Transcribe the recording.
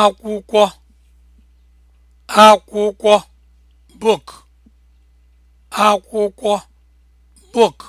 akwụkwọ akwụkwọ book akwụkwọ book